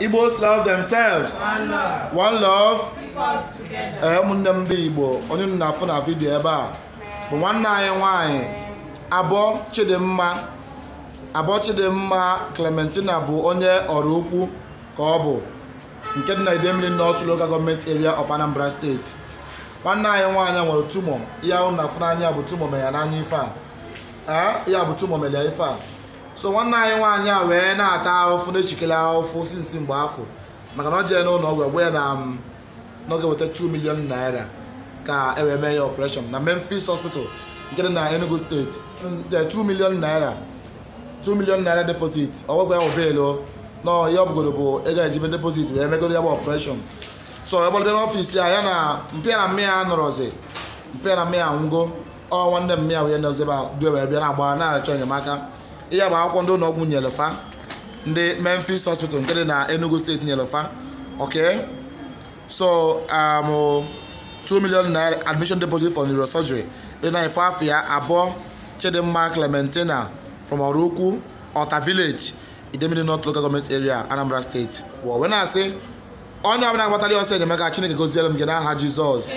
Igbos love themselves. One love. Eh, ụmụnne m ndị Igbo onye m na na vidiyo ebe a bụ nwanne anyị nwanyị abọ Chidimma abọ Chidimma Clementina bụ onye ọrụ ukwu ka ọ bụ nke dị na Idemili North Local Government Area of Anambra State nwanne anyị nwanyị nwere tumor. ihe ahụ na-afụ n'anya bụ tumor mere ya n'anya ife a ya ah, bụ tumor mere ya ife a so nwanne anyị nwaanyị a wee na-ata ahụfụ na-echikele ahụfụ sinsi mgbe afọ maka na ọ jee n'ụlọ ọgwụ egwe ya na um, n'oge weta 2 milion naira ka e wee mee ya ọpụreshọn na Memphis hospital nke dị na Enugu steeti 2 milion naira 2 milion naira deposit ọgwụgwọ ya wụbeelo na ihe ọbụgodo bụ ego ejibe deposit wee megoro ya bụ ọpụreshọn so egbalịbịa n'ọfisi a ya na mpịa na mmịa ya nọrọzi mpịa na mmịa nwụgo ọ nwanne mmịa wee nọzi ebe a due wee bịa na agba na-achọ enyemaka ya bụ akwụkwọ ndị ụlọ ọgwụ nyelefa ndị Memphis hospital nke dị na Enugu steeti nyelefa okay so um, 2 million naira admission deposit for neurosurgery dị na ife afọ ya abụọ Chidimma Clementina from Orukwu Ota village Idemili North Local Government Area Anambra State wee na-asị onye ọbụla agbatara ọsọ enyemaka Chineke goziere m gị n'aha Jizọs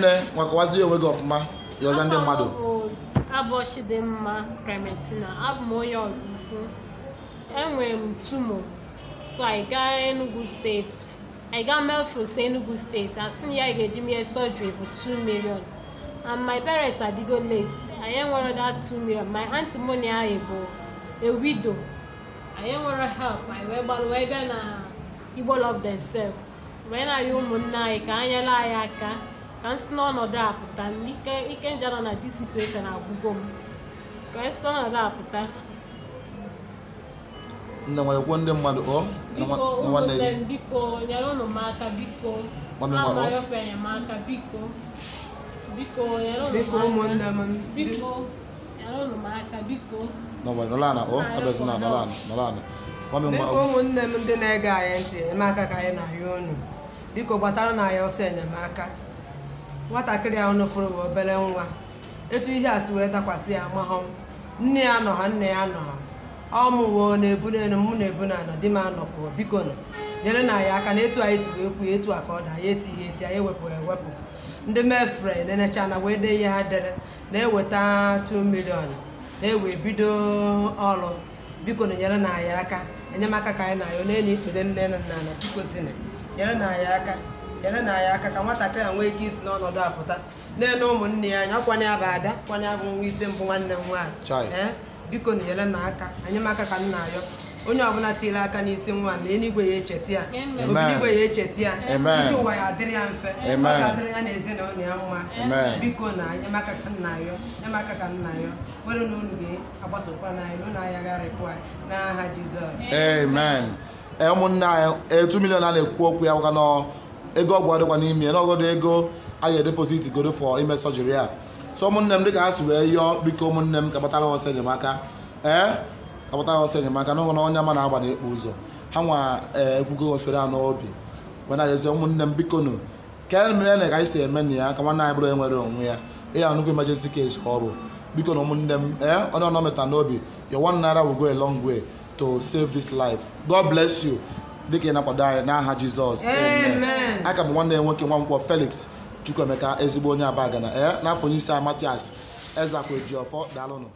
nne nwakọwazie onwe gị ọfụma ọzọ ndị mmadụ Abọchi dị mma Clementina, abụ m onye Ọraifite, enwere m tumo so I Enugu State, I ga Melrose Enugu State, asị na ya ga-eji mee surgery for 2 million and my parents adịgo late, anyị nwere that 2 million, my aunty Moni ahụ bụ a widow, anyị enwero help, anyị wee gbalụ wee na Igbo love themselves, wee na-ayọ ụmụnne anyị ka anyela nyere anyị aka ka m si n'ọnọdụ a pụta ike ike nje nọ na dis situation agwụgo m ka m si n'ọnọdụ a pụta nne nwere kwuo ndị mmadụ ọ nwanne gị biko nyere ụnụ m aka biko amaghịofe enyemaka biko biko nyere ụnụ m aka biko nyere ụnụ m aka biko ụmụnne m ndị na-ege anyị ntị enyemaka ka anyị na-arịọ unu biko gbatara na anyị ọsọ enyemaka nwatakịrị ahụ nọfụrụ bụ obere nwa etu ihe asị wee dakwasị ya mahụ nne ya nọ ha nne ya nọ ha ọ na-ebu n'elu mụ na-ebu na anọ di m anọpụo biko nọ nyere na ya aka na etu anyị si wee kwuo etu a ka ọ da ya etighi eti anyị ewepụ ewepụ ndị mefre enecha na wee dee ihe ha dere na-eweta 2 milion na-ewe bido ọrụ biko nyere na ya aka enyemaka ka anyị na ayọ na enyi ikpere nne na nna biko nyere na ya aka nyere na ya aka ka nwatakịrị a nwee ike isi n'ọnọdụ apụta na-ele ụmụnne ya anya ọkwanye ya bụ ada kwanye ya bụ nwa isi mbụ nwanne m nwaanyị ee biko na nyere na aka anyị maka ka m na-ayọ onye ọbụla tiere aka n'isi nwa na eluigwe ya echeta ya obiligwe ya echeta ya ndị ụwa ya adịrị ya mfe ọ ga-adịrị ya na ezinụlọ ya mma biko na enyemaka ka nna yọ enyemaka ka nna yọ were na unu ga-agbasokwa n'anyị n'ụlọ ahịa gharịpụ anyị n'aha Jizọs ụmụnne anyị etu milion a na-ekwu okwu ya wụga n'ọ ego ọgwụ adịkwa n'ime ya n'ọgọdụ ego a ga edeposit godo fọ ime sọjiri a so ụmụnne m dịka ha si wee yọọ biko ụmụnne m kapatara ọsọ enyemaka ee kapatara ọsọ enyemaka na onye ama na-agba na-ekpo ụzọ ha nwa ekwugo osere n'obi wena jezie ụmụnne m biko nụ kere mere na ka anyị si eme na ya ka nwanne anyị bụrụ enwere onwe ya ịya nnukwu emergency case ka ọ bụ biko na ụmụnne m ee onye ọnọ meta n'obi your one naira will go a long way to save this life god bless you dịka ị na-akwado anyị n'aha Jizọs aka m nwanne ya nwoke Nwankwọ Felix Chukwuemeka ezigbo onye Abagana e eh, n'afọ onye isi Matias Ezekwe Jiofọ